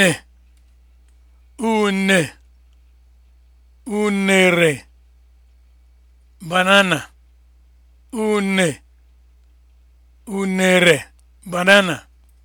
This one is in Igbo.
une une unere banana unere banana